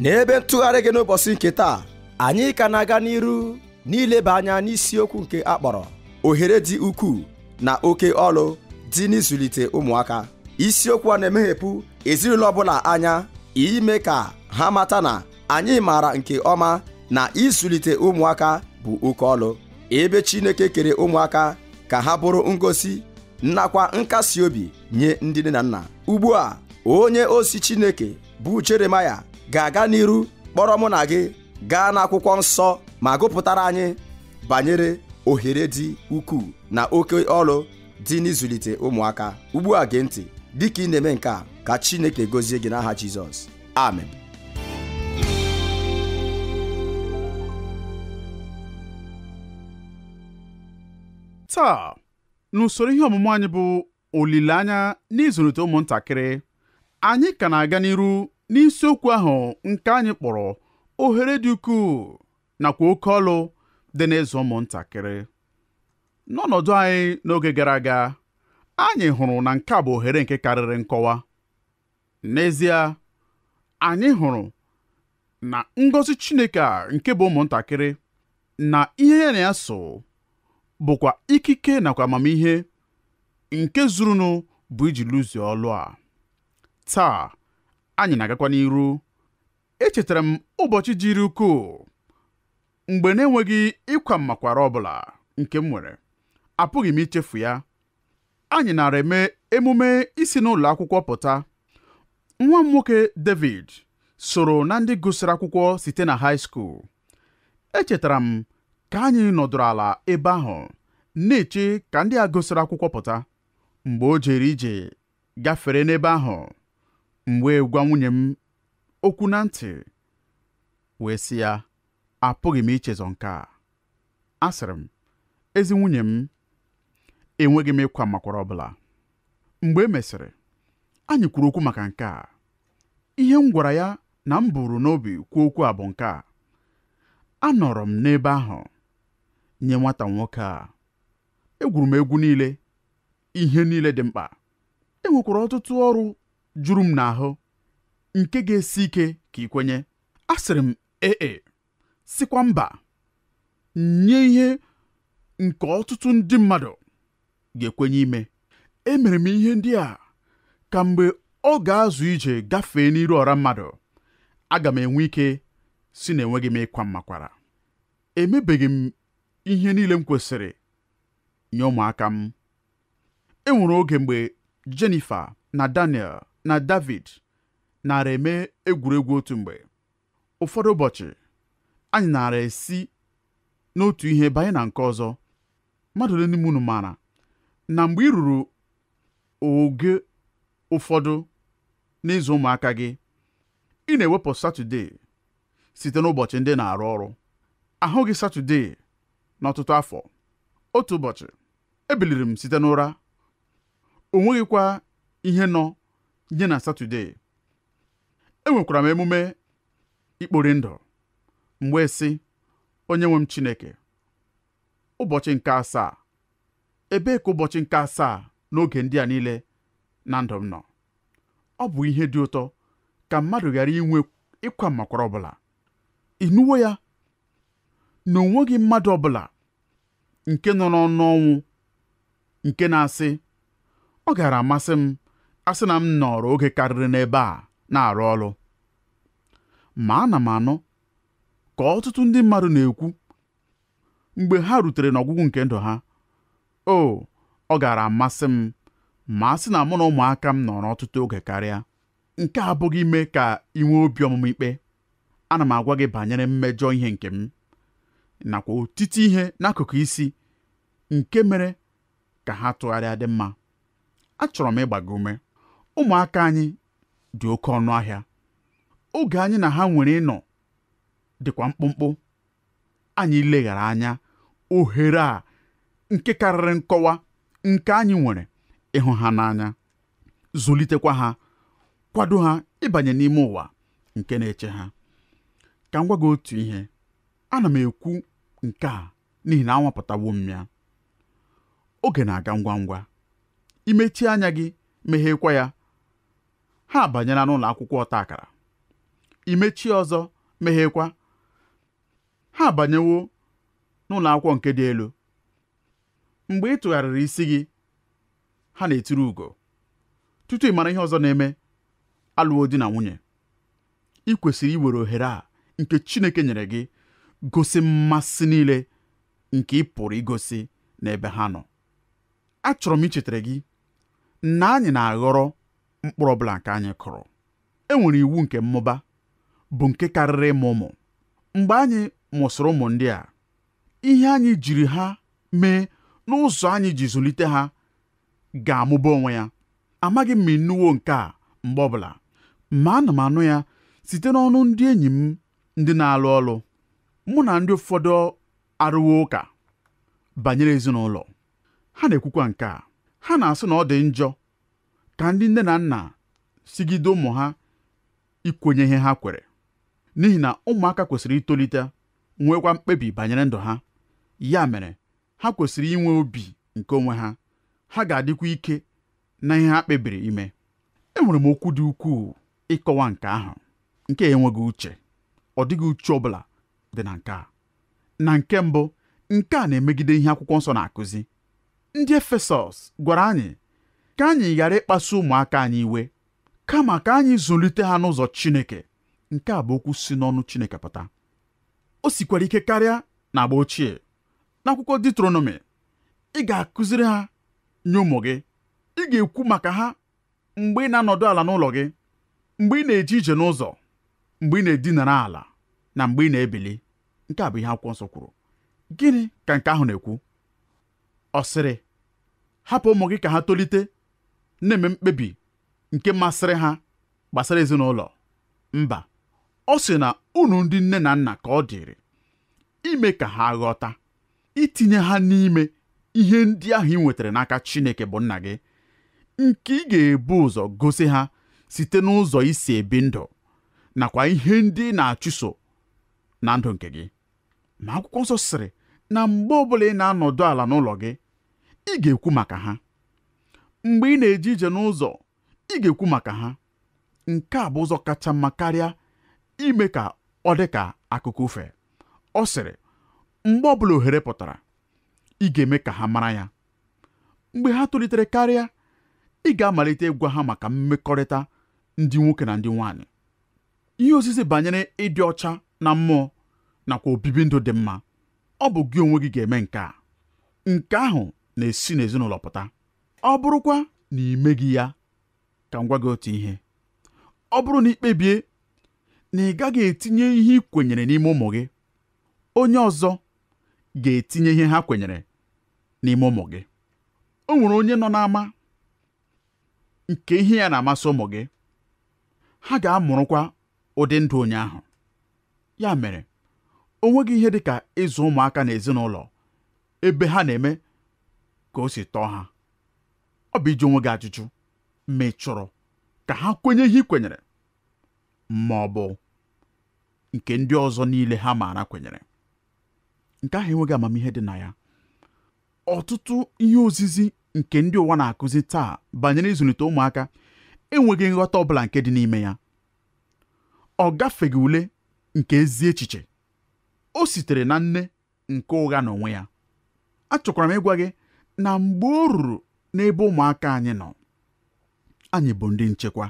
n'ebe ntụgharị gị n'ụbọchị nke taa anyị ka na-aga n'iru n'ileba anya n'isiokwu nke akpọrọ ohere dị ukwuu na oke ọlụ dị n'ịzụlite ụmụaka isiokwu a na-emeghepụ ezinụlọ ọbụla anya ime ka ha mata na anyị maara nke ọma na ịzụlite ụmụaka bụ oke ọlụ ebe Chineke kere ụmụaka ka ha bụrụ ngosi nakwa nkasi obi nye ndị nne na nna ugbu a onye osi Chineke bụ Jeremaya ga-aga n'iru kpọrọ mụ na gị gaa n'akwụkwọ nsọ ma gụpụtara anyị banyere ohere dị ukwuu na oke ọrụ dị n'ịzụlite ụmụaka ugbu a gee ntị dịka ị na-eme nke a ka Chineke gozie gị n'aha Jizọs amen taa n'usoro ihe ọmụmụ anyị bụ olileanya n'ịzụlite ụmụntakịrị anyị ka na-aga n'iru n'isiokwu ahụ nke anyị kpọrọ ohere dị ukwuu nakwa oke ọlụ dị n'ịzụ ụmụntakịrị n'ọnọdụ anyị n'oge gara aga anyị hụrụ na nke a bụ ohere nke karịrị nkọwa n'ezie anyị hụrụ na ngọzi Chineke a nke bụ ụmụntakịrị na ihe ya na ya so bụkwa ikike nakwa amamihe nke zurunu bụ iji lụzie ọlụ a taa anyị na-agakwa n'iru echetara m ụbọchị jiri ukwuu mgbe na-enweghị ịkwa mmakwara bụla nke m nwere apụghị m ichefu ya anyị nara eme emume isi n'ụlọ akwụkwọ pụta nwa m nwoke David soro na ndị gụsịrị akwụkwọ site na high school echetara m ka anyị nọdụrụ ala ebe ahụ na-eche ka ndị a gụsịrị akwụkwọ pụta mgbe o jere ije gafere n'ebe ahụ Mgbe wee gwa nwunye m okwu na ntị wee sị ya apụghị m ichezọ nke a asịrị m ezi nwunye m enweghị m ịkwa makwara ọbụla mgbe e mesịrị anyị kwuru okwu maka nke a ihe m gwara ya na m bụrụ n'obi kwuo okwu a bụ nke a anọrọ m n'ebe ahụ nye nwata nwoke a egwuru m egwu niile ihe niile dị mkpa enwekwara ọtụtụ ọrụ juru m n'ahụ nke ga-esi ike ka ị kwenye asịrị m ee e, sikwa mba nye ihe nke ọtụtụ ndị mmadụ ga-ekwenye ime emere m ihe ndị a ka mgbe ọ ga-azụ ije gafee n'iru ọra mmadụ aga m enwe ike si na enweghị m ịkwa mmakwara emebeghị m ihe niile m kwesịrị nye ụmụaka m enwere oge mgbe Jennifer na Daniel na David nara eme egwuregwu otu mgbe ụfọdụ ụbọchị anyị nara esi n'otu ihe banye na nke ọzọ mmadụ ole n'ime unu maara na mgbe ị ruru oge ụfọdụ n'ịzụ ụmụaka gị ị na-ewepụ satọdee site n'ụbọchị ndị na-arụ ọrụ ahụghị Satọde n'ọtụtụ afọ otu ụbọchị ebiliri m site n'ụra o nweghịkwa ihe nọ nye na satọde enwekwara m emume ikpori ndụ mgbe si onye nwe m chineke ụbọchị nke asaa ebee ka ụbọchị nke asaa n'oge ndị a niile na ndụ m nọ ọ bụ ihe dị ụtọ ka mmadụ ghara inwe ịkwa makwara ọbụla ịnụwo ya na onweghị mmadụ ọbụla nke nọ n'ọnụ ọnwụ nke na-asị ọ gara amasị m a sị na m nọrọ oge karịrị n'ebe a na-arụ ọrụ ma ana m anụ ka ọtụtụ ndị mmadụ na-ekwu mgbe ha rutere n'ọgwụgwụ nke ndụ ha o ọ gaara amasị m ma a sị na mụ na ụmụaka m nọrọ ọtụtụ oge karịa nke abụghị ime ka ị nwee obi ọmụmụ ikpe ana m agwa gị banyere mmejọ ihe nke m nakwa otiti ihe n'akụkụ isi nke mere ka ha tụgharịa dị mma achọrọ m ịgba gị ume ụmụaka anyị dị oke ọnụ ahịa oge anyị na ha nwere ịnọ dịkwa mkpụmkpụ anyị leghara anya ohere a nke karịrị nkọwa nke anyị nwere ịhụ ha n'anya zụlitekwa ha kwado ha ịbanye n'ime ụwa nke na-eche ha ka m gị otu ihe ana m ekwu nke a n'ihi na anwapụtawo m oge na-aga ngwa ngwa imechie anya gị meghekwa ya ha abanyela n'ụlọ akwụkwọ ọta akara imechi ọzọ meghekwa ha abanyewo n'ụlọ akwụkwọ nke dị elu mgbe ị tụgharịrị isi gị ha na-etiri ugo tutu ị mara ihe ọzọ na-eme alụwo di na nwunye ị kwesịrị iwere ohere a nke Chineke nyere gị gosi mmasị niile nke ị pụrụ igosi n'ebe ha nọ achọrọ m ichetara gị na anyị na-aghọrọ mkpụrụ ọbụla nke anyị kụrụ e nwere iwu nke mmụba bụ nke karịrị ịmụ ụmụ mgbe anyị mụsịrị ụmụ ndị a ihe anyị jiri ha mee n'ụzọ anyị ji zụlite ha ga-amụba onwe ya amaghị m ma ịnụwo nke a mgbe ọbụla ma ana m anụ ya site n'ọnụ ndị enyi m ndị na-alụ ọlụ mụ na ndị ụfọdụ arụwo ụka banyere ezinụlọ ha na-ekwukwa nke a ha na-asị na ọ dị njọ ka ndị nne na nna sigide ụmụ ha ikwenye ihe ha kwere n'ihi na ụmụaka kwesịrị itolite nwekwa mkpebi banyere ndụ ha ya mere ha kwesịrị inwe obi nke onwe ha ha ga-adịkwa ike na ihe ha kpebiri ime enwere m okwu dị ukwuu ịkọwa nke ahụ nke enweghị uche ọ dịghị uche ọ bụla dị na nke a na nke mbụ nke a na-emegide ihe akwụkwọ nsọ na-akụzi ndị efesọs gwara anyị ka anyị ghara ịkpasu ụmụaka anyị iwe kama ka anyị zụlite ha n'ụzọ Chineke nke a bụ okwu si n'ọnụ Chineke pụta o sikwara ike karịa na agba ochie n'akwụkwọ Diuteronomi ị ga-akụziri ha nye ụmụ gị ị ga-ekwu maka ha mgbe ị na-anọdụ ala n'ụlọ gị mgbe ị na-eje ije n'ụzọ mgbe ị na-edinara ala na mgbe ị na-ebili nke a bụ ihe akwụkwọ nsọ kwuru gịnị ka nke ahụ na-ekwu ọ sịrị hapụ ụmụ gị ka ha tolite na-eme mkpebi nke masịrị ha gbasara ezinụlọ mba ọ sị na unu ndị nne na nna ka ọ dịrị ime ka ha ghọta itinye ha n'ime ihe ndị ahụ ị nwetara n'aka Chineke bụ nna gị nke ị ga-ebu ụzọ gosi ha site n'ụzọ isi ebi ndụ nakwa ihe ndị ị na-achụso na ndụ nke gị ma akwụkwọ nsọ sịrị na mgbe ọbụla ị na-anọdụ ala n'ụlọ gị ị ga-ekwu maka ha mgbe ị na-eje ije n'ụzọ ị ga-ekwu maka ha nke a bụ ụzọ kacha mma karịa ime ka ọ dị ka akụkụ ofe ọ sịrị mgbe ọbụla ohere pụtara ị ga-eme ka ha mara ya mgbe ha tolitere karịa ị ga-amalite ịgwa ha maka mmekọrịta ndị nwoke na ndị nwaanyị ihe osisi banyere ịdị ọcha na mmụọ nakwa obibi ndụ dị mma ọ bụ gị onwe gị ga-eme nke a nke ahụ na-esi n'ezinụlọ pụta ọ bụrụkwa na ị meghị ya ka m gwa gị otu ihe ọ bụrụ na ị kpebie na ị gaghị etinye ihe ị kwenyere n'ime ụmụ gị onye ọzọ ga-etinye ihe ha kwenyere n'ime ụmụ gị o nwere onye nọ n'ama nke ihe ya na-amasị ụmụ gị ha ga-amụrụkwa ụdị ndụ onye ahụ ya mere o nweghị ihe dị ka ịzụ ụmụaka n'ezinụlọ ebe ha na-eme ka o si tọọ ha ọ bụ iji onwe gị ajụjụ ma ị chọrọ ka ha kwenye ihe ị kwenyere ma ọ bụ nke ndị ọzọ niile ha maara kwenyere nke ahụ enweghị amamihe dị na ya ọtụtụ ihe ozizi nke ndị ụwa na-akụzi taa banyere ịzụlite ụmụaka enweghị nghọta ọbụla nke dị n'ime ya ọ gafeghị ule nke ezi echiche o sitere na nne nke ụgha na onwe ya achọkwara m ịgwa gị na mgbe o ruru n'ebe ụmụaka anyị nọ anyị bụ ndị nchekwa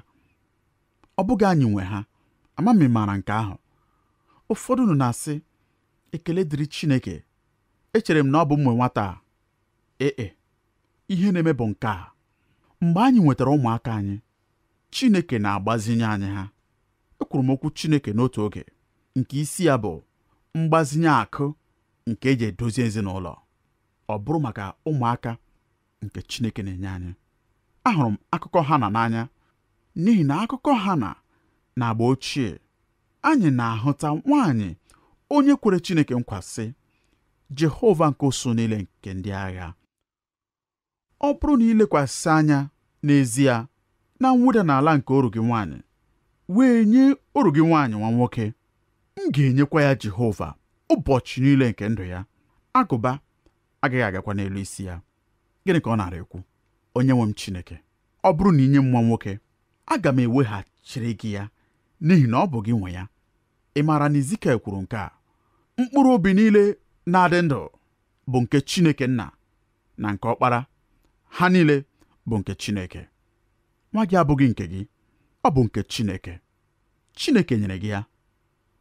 ọ bụghị anyị nwe ha amami maara nke ahụ ụfọdụ nọ na-asị ekele dịrị Chineke echere m na ọ bụ mwe nwata a ee e, ihe na-eme bụ nke a mgbe anyị nwetara ụmụaka anyị Chineke na-agbazinye anyị ha ekwuru m okwu Chineke n'otu oge nke isi ya bụ mgbazinye akụ nke eji edozi ezinụlọ ọ bụrụ maka ụmụaka nke Chineke na-enye anyị ahụrụ m akụkọ Hana n'anya n'ihi na akụkọ Hana na agba ochie anyị na-ahụta nwaanyị onye kwere Chineke nkwasị Jehova nke usu niile nke ndị agha ọ bụrụ na ilekwasị anya n'ezie na mwụda n'ala nke oru gị nwaanyị wee nye oru gị nwaanyị nwa nwoke m ga-enyekwa ya Jehova ụbọchị niile nke ndụ ya agụba agaghị agakwa n'elu isi ya gịnị ka ọ na ekwu onye nwe m chineke ọ bụrụ na inye m nwa nwoke aga m eweghachiri gị ya n'ihi na ọ bụ gị nwe ya ị maara na Izikel kwuru nke a mkpụrụ obi niile na-adị ndụ bụ nke Chineke nna na nke ọkpara ha niile bụ nke Chineke nwa gị abụghị nke gị ọ bụ nke Chineke Chineke nyere gị ya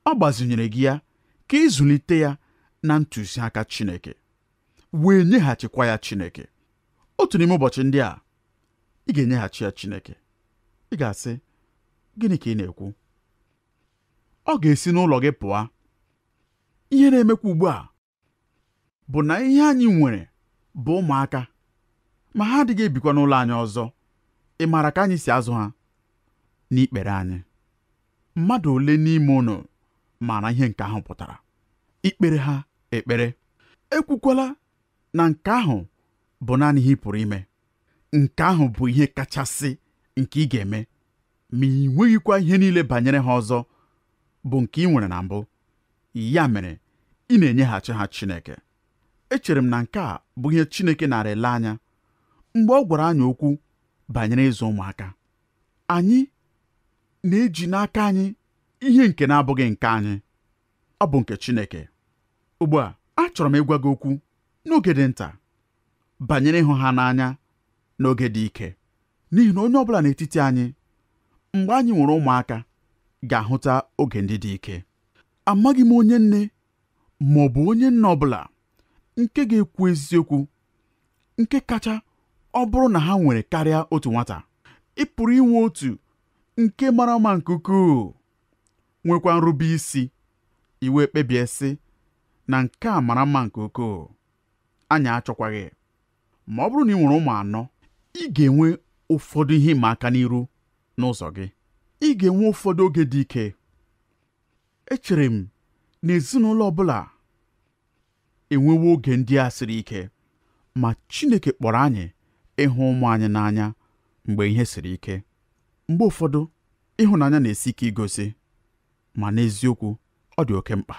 ọ gbazinyere gị ya ka ịzụlite ya na ntụziaka Chineke wee nyeghachikwa ya Chineke otu n'ime ụbọchị ndị a ị ga-enyeghachi ya Chineke ị ga-asị gịnị ka ị na-ekwu ọ ga-esi n'ụlọ gị pụọ ihe na-emekwa ugbu a bụ na ihe anyị nwere bụ ụmụaka ma ha adịghị ebikwa n'ụlọ anyị ọzọ ị maara ka anyị si azụ ha n'ikpere anyị mmadụ ole n'ime unu maara ihe nke ahụ pụtara ikpere ha ekpere ekwukwala na nke ahụ bụ naanị ihe ị pụrụ ime nke ahụ bụ ihe kachasị nke ị ga-eme ma ị nweghịkwa ihe niile banyere ha ọzọ bụ nke ị nwere na mbụ ya mere ị na-enyeghachi ha Chineke echere m na nke a bụ ihe Chineke ara ele anya mgbe ọ gwara anyị okwu banyere ịzụ ụmụaka anyị na-eji n'aka anyị ihe nke na-abụghị nke anyị ọ bụ nke Chineke ugbu a achọrọ m ịgwa gị okwu n'oge dị nta banyere ịhụ ha n'anya n'oge dị ike n'ihi na onye ọbụla n'etiti anyị mgbe anyị nwere ụmụaka ga-ahụta oge ndị dị ike amaghị m onye nne ma ọ bụ onye nna ọbụla nke ga-ekwu eziokwu nke kacha ọ bụrụ na ha nwere karịa otu nwata ị pụrụ inwe otu nke mara mma nke ukwuu nwekwa nrube isi iwe kpebie sị na nke a mara mma nke ukwuu anyị achọkwaghị ma ọ bụrụ na ị nwere ụmụ anọ ị ga-enwe ụfọdụ ihe ịma aka n'iru n'ụzọ gị ị ga-enwe ụfọdụ oge dị ike echere m na ezinụlọ ọ bụla enwewo oge ndị a siri ike ma Chineke kpọrọ anyị ịhụ ụmụ anyị n'anya mgbe ihe siri ike mgbe ụfọdụ ịhụnanya na-esi ike igosi ma n'eziokwu ọ dị oke mkpa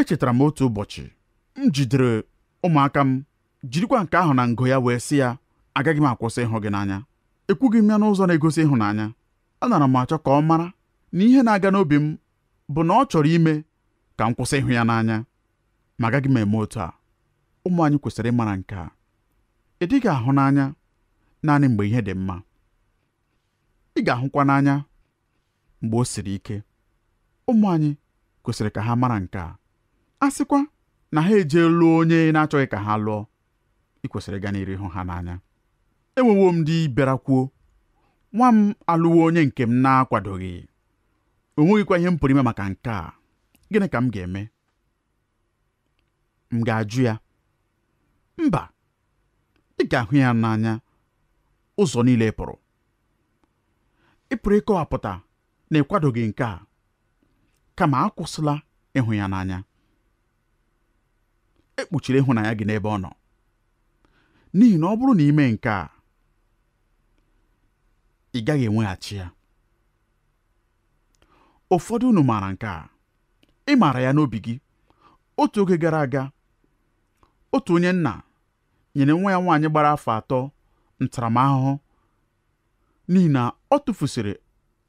echetara m otu ụbọchị m jidere ụmụaka m jirikwa nke ahụ na ngo ya wee sị ya agaghị m akwụsị ịhụ gị n'anya ekwughị m ya n'ụzọ na-egosi ịhụnanya anara m achọ ka ọ mara na ihe na-aga n'obi m bụ na ọ chọrọ ime ka m kwụsị ịhụ ya n'anya ma agaghị m eme otu a ụmụ anyị kwesịrị ịmara nke a ị dịghị ahụ n'anya naanị mgbe ihe dị mma ị ga-ahụkwa n'anya mgbe o siri ike ụmụ anyị kwesịrị ka ha mara nke a a sịkwa na ha lụọ onye na-achọghị ka ha lụọ ị kwesịrị ịga n'iri hụ ha n'anya enwewo m di bịarakwuo nwa m alụwo onye nke m na-akwadoghị o nweghịkwa ihe m pụrụ ime maka nke a gịnị ka m ga-eme m ga-ajụ ya mba ị ga-ahụ ya n'anya ụzọ niile e pụrụ ị pụrụ ịkọwapụta na ịkwadoghị nke a kama akwụsịla ịhụ ya n'anya ekpuchiri ịhụnanya gị n'ebe ọ nọ n'ihi na ọ bụrụ na ime nke a ị gaghị enweghachi ya ụfọdụ unu maara nke a ị maara ya n'obi gị otu oge gara aga otu onye nna nyere nwa ya nwaanyị gbara afọ atọ ntaramahụhụ n'ihi na ọ tụfusịrị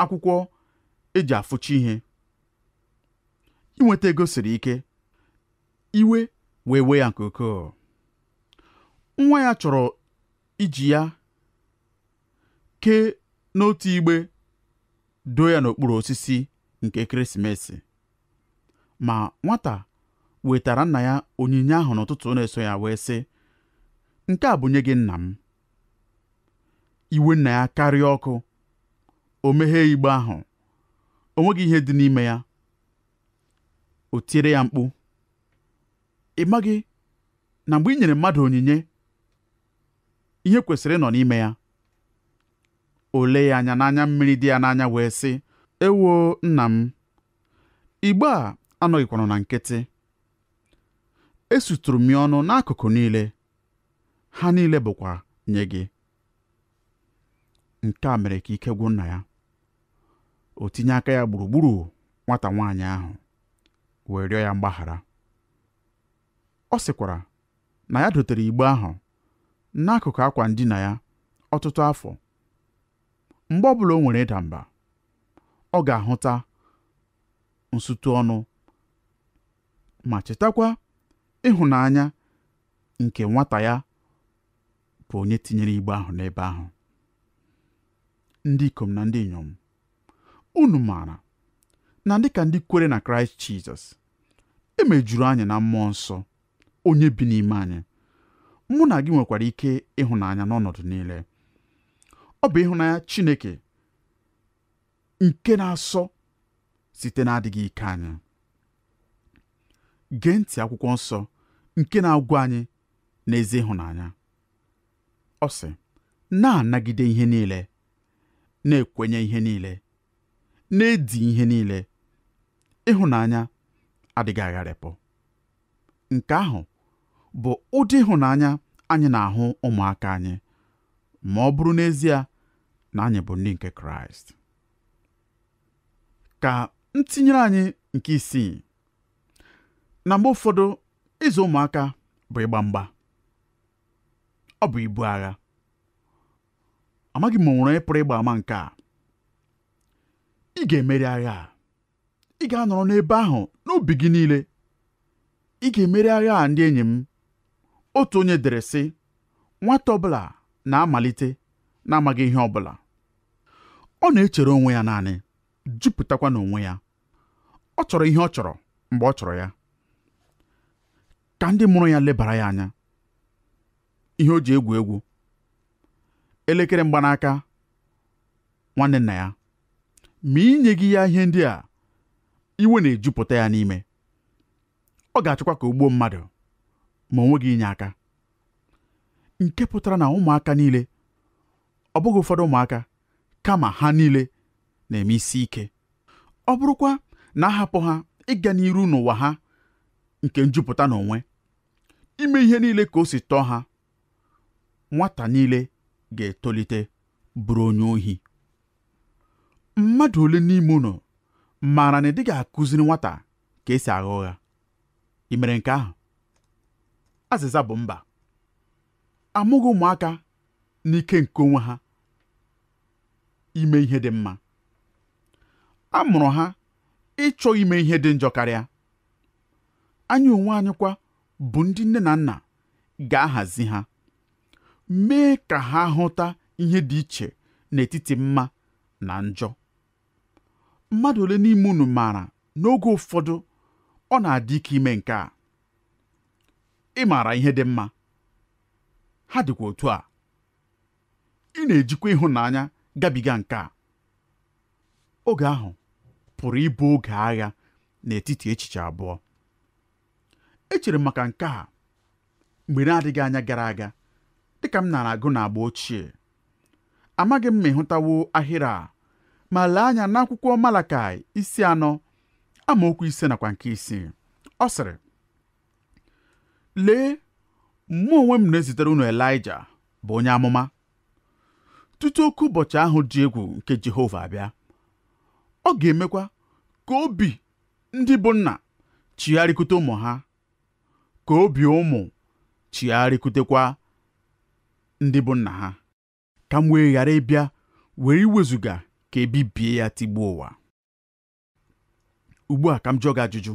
akwụkwọ eji afụcha ihe inweta ego siri ike iwe wee wee ya nke ukwuu nwa ya chọrọ iji ya kee n'otu igbe doo ya n'okpuru osisi nke ekeresimesi ma nwata wetara nna ya onyinye ahụ n'ụtụtụ na-eso ya wee sị nke a bụ nye gị nna m iwe nna ya karịa ọkụ o meghee igbe ahụ o nweghị ihe dị n'ime ya o tiere ya mkpu ị maghị na mgbe i nyere mmadụ onyinye ihe kwesịrị ịnọ n'ime ya Olee ya anya n'anya mmiri dị ya n'anya wee sị Ewo nna m igbe a anọghịkwanụ na nkịtị esuturu m ya ọnụ n'akụkụ niile ha niile bụkwa nye gị nke a mere ka ike gwụ nna ya o tinye aka ya gburugburu nwata nwaanyị ahụ wee rịọ ya mgbaghara ọ sịkwara na ya dotere igbe ahụ n'akụkụ akwa ndina ya ọtụtụ afọ mgbe ọbụla o nwere ịda mba ọ ga-ahụta nsụtụ ọnụ ma chetakwa ịhụnanya nke nwata ya bụ onye tinyere igbe ahụ n'ebe ahụ ndị ikom na ndị inyom unu maara na dịka ndị kwere na kraịst jizọs emejuru anyị na mmụọ nsọ onye bi n'ime anyị mụ na gị nwekwara ike ịhụnanya n'ọnọdụ niile ọ bụ ịhụnanya Chineke nke na-asọ site na-adịghị ike anyị gee ntị akwụkwọ nsọ nke na-agwa anyị n'ezi ịhụnanya ọ sị na-anagide ihe niile na-ekwenye ihe niile na-edi ihe niile ịhụnanya adịghị agharịpụ nke ahụ bụ ụdị ịhụnanya anyị na-ahụ ụmụaka anyị ma ọ bụrụ n'ezie na anyị bụ ndị nke kraịst ka m anyị nke isii na mgbe ụfọdụ ịzụ ụmụaka bụ ịgba mgba ọ bụ ibu agha amaghị m onwere onye ịgba ama nke a ị ga-emeri agha a ị ga-anọrọ n'ebe ahụ n'obi gị niile ị ga-emeri agha a ndị enyi m otu onye dere sị nwata ọbụla na-amalite na-amaghị ihe bụla." ọ na-echere onwe ya naanị jupụtakwa n'onwe ya ọ chọrọ ihe ọ chọrọ mgbe ọ chọrọ ya ka ndị mụrụ ya lebara ya anya ihe o ji egwu egwu elekere mgbanaka nwanne nna ya ma inyeghị ya ihe ndị a iwe na-ejupụta ya n'ime ọ ga-achọkwa ka o gbuo mmadụ ma onwe gị inye aka nke pụtara na ụmụaka niile ọ bụghị ụfọdụ ụmụaka kama ha niile na-eme isi ike ọ bụrụkwa na ahapụ ha ịga n'iru n'ụwa ha nke njupụta n'onwe ime ihe niile ka o si tọọ ha nwata niile ga-etolite bụrụ onye ohi mmadụ ole n'ime ụlọ maara na ị dịghị akụziri nwata ka esi agha ụgha ị mere nke ahụ azịza bụ mba amụghị ụmụaka n'ike nke onwe ha ime ihe dị mma a mụrụ ha ịchọ ime ihe dị njọ karịa anyị onwe anyị bụ ndị nne na nna ga-ahazi ha mee ka ha hụta ihe dị iche n'etiti mma na njọ mmadụ ole n'ime unu maara n'oge ụfọdụ ọ na-adị ike ime nke a ị maara ihe dị mma ha dịkwa otu a ị na-ejikwa ịhụnanya gabiga nke a oge ahụ pụrụ ịbụ oge agha n'etiti echiche abụọ echere m maka nke a mgbe na-adịghị anya gara aga dị ka m nara agụ na agba ochie amaghị m ma ịhụtawo ahịrị a ma lee anya n'akwụkwọ Malakai isi anọ amaokwu ise nakwa nke isii ọ sịrị lee mụ onwe m na-ezitere unu Elaịja bụ onye amụma tutu oke ụbọchị ahụ dị egwu nke Jehova abịa ọ ga-emekwa ka obi ndị bụ nna chigharịkute ụmụ ha ka obi ụmụ chigharịkutekwa ndị bụ nna ha ka m wee ghara ịbịa were iwezuga ka ebibie ya tigbuo ụwa ugbu a ka m jụọ gị ajụjụ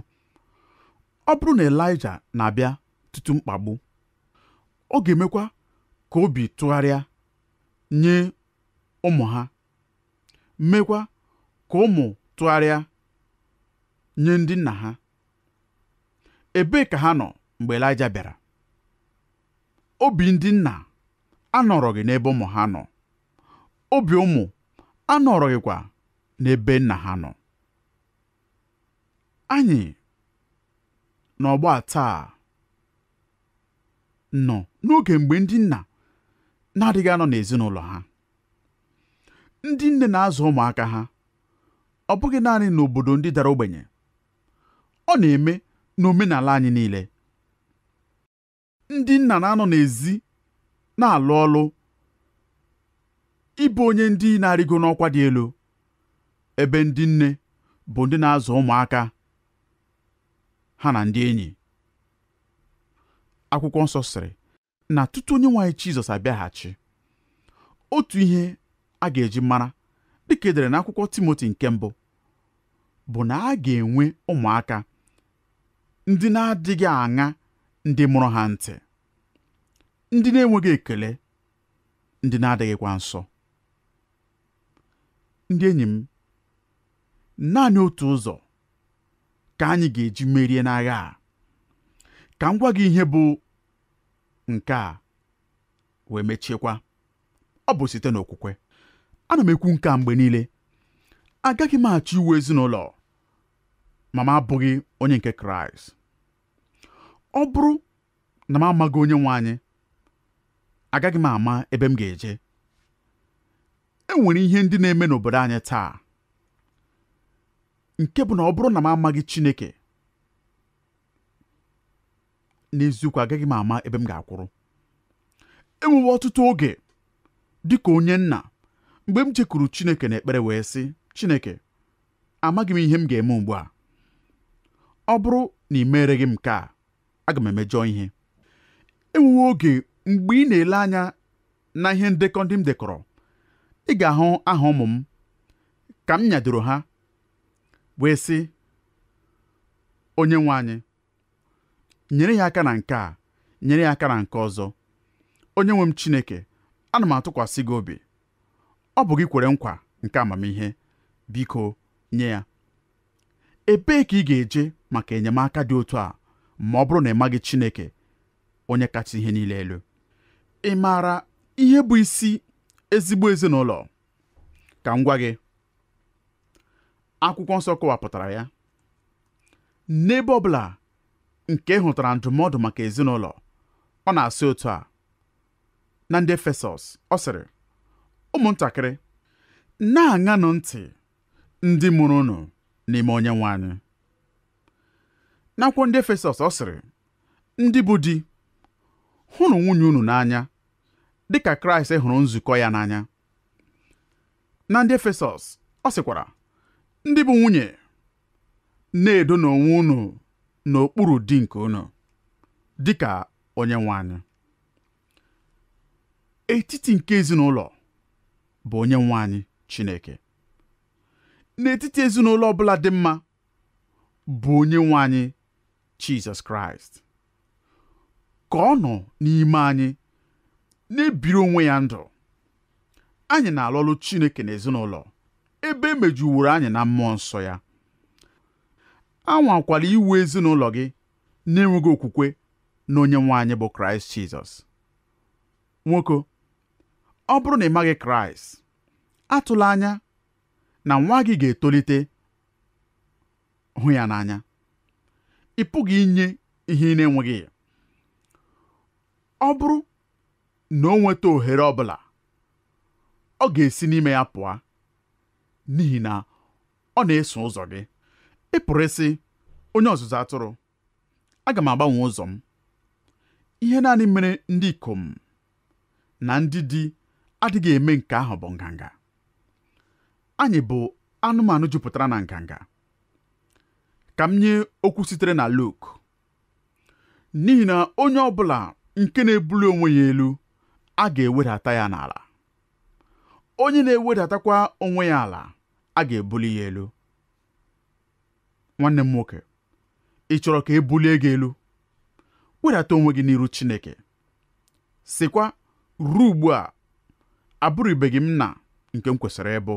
ọ bụrụ na Elaịja na-abịa ọtụtụ mkpagbu ọ ga-emekwa ka obi tụgharịa nye ụmụ ha mekwa ka ụmụ tụgharịa nye ndị nna ha ebee ka ha nọ mgbe Elaịja bịara obi ndị nna anọrọghị n'ebe ụmụ ha nọ obi ụmụ anọrọghịkwa n'ebe nna ha nọ anyị n'ọgbọ taa nọ n'oge mgbe ndị nna na-adịghị anọ n'ezinụlọ ha ndị nne na-azụ ụmụaka ha ọ bụghị naanị n'obodo ndị dara ogbenye ọ na-eme n'omenala anyị niile ndị nna na-anọ n'ezi na-alụ ọlụ ịbụ onye ndị na-arịgo n'ọkwa dị elu ebe ndị nne bụ ndị na-azụ ụmụaka ha na ndị enyi akwụkwọ nsọ sịrị na tutu onye nwaanyị Jizọs abịaghachi otu ihe a ga-eji mara dịka edere na akwụkwọ Timoti nke mbụ bụ na a ga-enwe ụmụaka ndị na-adịghị aṅa ndị mụrụ ha ntị ndị na-enweghị ekele ndị na-adịghịkwa nsọ ndị enyi m naanị otu ụzọ ka anyị ga-eji merie n'agha a ka m gwa ihe bụ nke a wee mechiekwa ọ bụ site n'okwukwe ana m ekwu nke a mgbe niile agaghị m achọ iwu ezinụlọ ma m abụghị onye nke kraịst ọ bụrụ na m amaghị onye nwe anyị agaghị m ama ebe m ga-eje e nwere ihe ndị na-eme n'obodo anyị taa nke bụ na ọ bụrụ na m amaghị Chineke n'eziokwu agaghị m ama ebe m ga-akwụrụ enwewe ọtụtụ oge dị ka onye nna mgbe m chekuru Chineke ekpere wee sị Chineke amaghị m ihe m ga-eme ugbu a ọ bụrụ na ị meere m nke a aga m emejọ ihe enwewe oge mgbe ị na-ele anya na ihe ndekọ ndị m dekọrọ ị ga-ahụ aha ụmụ m ka m nyadoro ha wee sị onye nwe anyị nyere ya aka na nke a nyere ya aka na nke ọzọ onye nwe m Chineke ana m atụkwasị gị obi ọ bụ gị kwere nkwa nke amamihe biko nye ya ebee ka ị ga-eje maka enyemaka dị otu a ma ọ bụrụ na ị maghị Chineke onye kacha ihe niile elu ị maara ihe bụ isi ezigbo ezinụlọ ka m gwa gị akwụkwọ nsọ kọwapụtara ya n'ebe ọ bụla nke hụtara ndụmọdụ maka ezinụlọ ọ na-asị otu a na ndị Efesọs ọ sịrị ụmụntakịrị na-aṅanụ ntị ndị mụrụ unu n'ime onye nwe anyị n'akwụkwọ ndị Efesọs ọ sịrị ndị bụ di hụrụ nwunye unu n'anya dị ka Kraịst hụrụ nzukọ ya n'anya na ndị Efesọs ọ sịkwara ndị bụ nwunye na-edo n'onwe unu n'okpuru dị nke unu dịka onye nwe anyị etiti nke ezinụlọ bụ onye nwe anyị Chineke n'etiti ezinụlọ ọbụla dị mma bụ onye nwe anyị Jizọs Kraịst ka ọ nọ n'ime anyị na-ebiri onwe ya ndụ anyị na-alụlụ Chineke n'ezinụlọ ebe emejuworo anyị na mmụọ nsọ ya anwakwala iwu ezinụlọ gị na-enweghị okwukwe na onye nwe anyị bụ kraịst jizọs nwoke ọ bụrụ na ị maghị kraịst atụla anya na nwa gị ga-etolite hụ ya n'anya ị pụghị inye ihe ị na-enweghị ya ọ bụrụ na o nweta ohere ọ bụla ọ ga-esi n'ime ya pụọ n'ihi na ọ na-eso ụzọ gị ị pụrụ onye ọzụzụ atụrụ aga m agbanwe ụzọ m ihe naanị mere ndị ikom na ndị di adịghị eme nke ahụ bụ nganga anyị bụ anụmanụ jupụtara na nganga ka m nye okwu sitere na Luk n'ihi na onye ọ bụla nke na-ebuli onwe ya elu a ga-ewedata ya n'ala onye na-ewedatakwa onwe ya ala a ga-ebuli ya elu nwanne m nwoke ị chọrọ ka e bulie gị elu wedata onwe gị n'iru Chineke sịkwa ruo ugbu a abụrụbeghị m na nke m kwesịrị ịbụ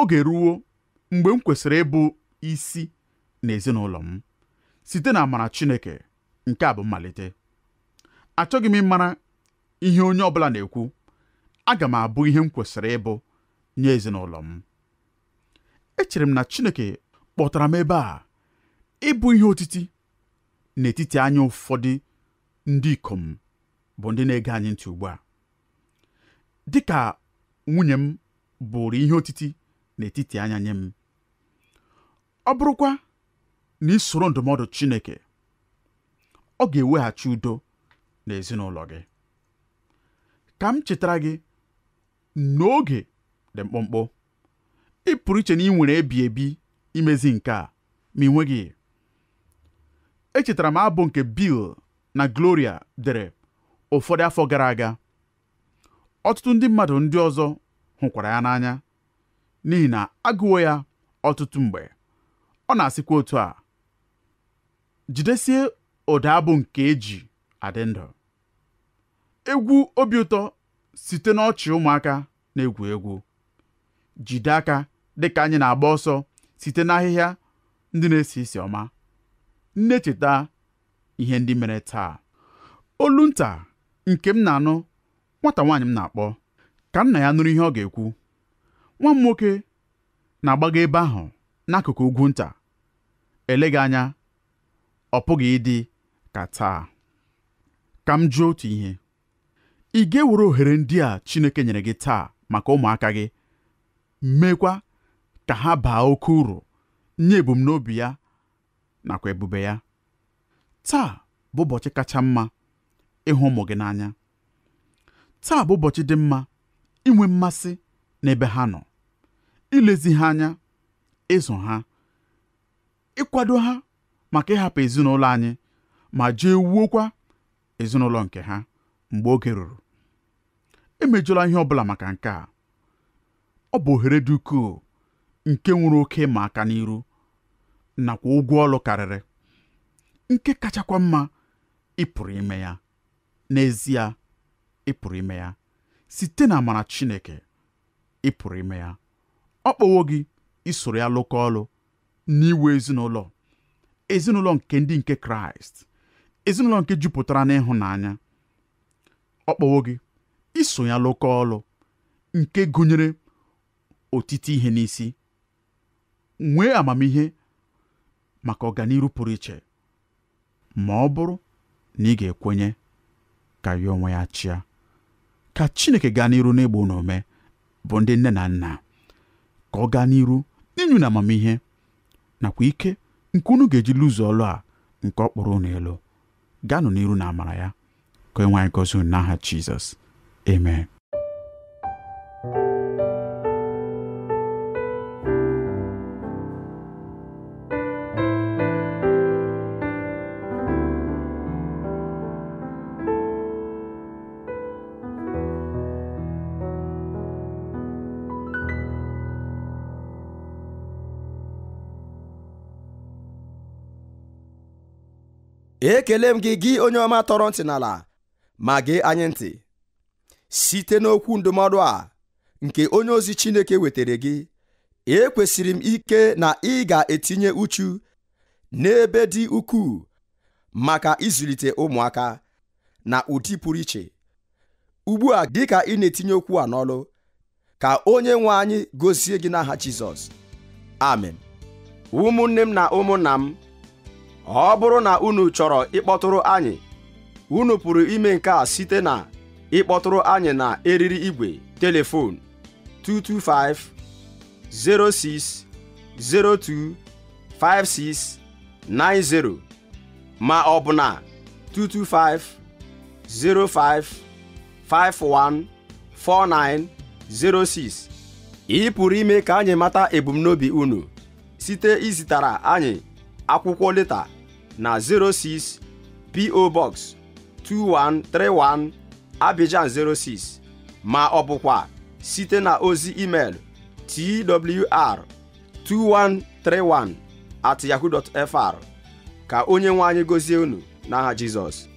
oge ruo mgbe m kwesịrị ịbụ isi na ezinụlọ m site na amara Chineke nke a bụ mmalite achọghị m ịmara ihe onye ọbụla na-ekwu aga m abụ ihe m kwesịrị ịbụ nye ezinụlọ m echere m na Chineke kpọtara m ebe a ịbụ ihe otiti n'etiti anya ụfọdụ ndị ikom bụ ndị na-ege anyị ntị ugbu a dịka nwunye m bụrụ ihe otiti n'etiti anya nye m ọ bụrụkwa na ị ndụmọdụ Chineke ọ ga-eweghachi udo n'ezinụlọ gị ka m chetara gị n'oge dị mkpụmkpụ ị iche na ị nwere ebi ebi imezi nke a ma ị nweghị echetara m abụ nke Bill na Gloria dere ụfọdụ afọ gara aga ọtụtụ ndị mmadụ ndị ọzọ hụkwara ya n'anya n'ihi na agụwo ya ọtụtụ mgbe ọ na-asịkwa otu a jidesie ụda abụ nke eji adị ndụ egwu obi ụtọ site n'ọchị ụmụaka na-egwu egwu jide aka dịka anyị na-agba ọsọ site n'ahịhịa ndị na-esi isi ọma nne echeta ihe ndị mere taa olu nta nke m na-anụ nwata nwaanyị m na-akpọ ka nna ya nụrụ ihe ọ ga-ekwu nwa m nwoke na-agbaga ebe ahụ n'akụkụ ugwu nta eleghị anya ọ pụghị ịdị ka taa ka m jụọ otu ihe ị ga-ewere ohere ndị a Chineke nyere gị taa maka ụmụaka gị meekwa ka ha baa oke uru nye ebumnobi ya nakwa ebube ya taa bụ ụbọchị kacha mma ịhụ ụmụ gị n'anya taa bụ ụbọchị dị mma inwe mmasị n'ebe ha nọ ilezi ha anya ịzụ ha ịkwado ha maka ịhapụ ezinụlọ anyị ma jee wuokwa ezinụlọ nke ha mgbe oge ruru emejụla ihe ọ bụla maka nke a ọ bụ ohere dị ukwuu nke nwere oke ịma aka n'iru nakwa ụgwọ ọlụ karịrị nke kachakwa mma ịpụrụ ime ya n'ezie ịpụrụ ime ya site na amara Chineke ịpụrụ ime ya ọ kpọwo gị isoro ya lụkọ ọlụ n'iwu ezinụlọ ezinụlọ nke ndị nke Kraịst ezinụlọ nke jupụtara n'ịhụnanya ọ kpọwo gị iso ya lụkọ ọlụ nke gụnyere otite ihe n'isi nwee amamihe maka ọganihu pụrụ iche ma ọ bụrụ na ị ga-ekwenye ka ya onwe ya chịa ka Chineke gaa n'iru n'ịgba unu ome bụ ndị nne na nna ka ọ gaa n'iru inyu na amamihe nakwa ike nke unu ga-eji lụzu ọlụ a nke ọ kpọrọ unu elu gaanụ n'iru na amara ya ka enwe anyị gozi n'aha Jizọs amen ekele m gị gị onye ọma tọrọ ntị n'ala ma gee anyị ntị site n'okwu ndụmọdụ a nke onye ozi Chineke wetara gị ekwesịrị m ike na ị ga-etinye uchu n'ebe dị ukwuu maka ịzụlite ụmụaka na ụdị pụrụ iche ugbu a dị ka ị na-etinye okwu a n'ọlụ ka onye nwe anyị gozie gị n'aha Jizọs amen ụmụnne m na ụmụnna m ọ bụrụ na unu chọrọ ịkpọtụrụ anyị unu pụrụ ime nke a site na ịkpọtụrụ anyị na eriri igwe telefon 225 06 02 56 90 ma ọ bụ na 225 05 06 ị pụrụ ime ka anyị mata ebumnobi unu site izitara anyị akwụkwọ leta na 06 PO Box 2131 Abidjan 06 ma ọ bụkwa site na ozi email twr2131 at yahoo.fr ka onye nwe anyị gozie unu n'aha Jizọs